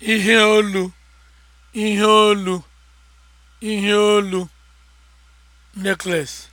ihe olu ihe olu ihe olu necklace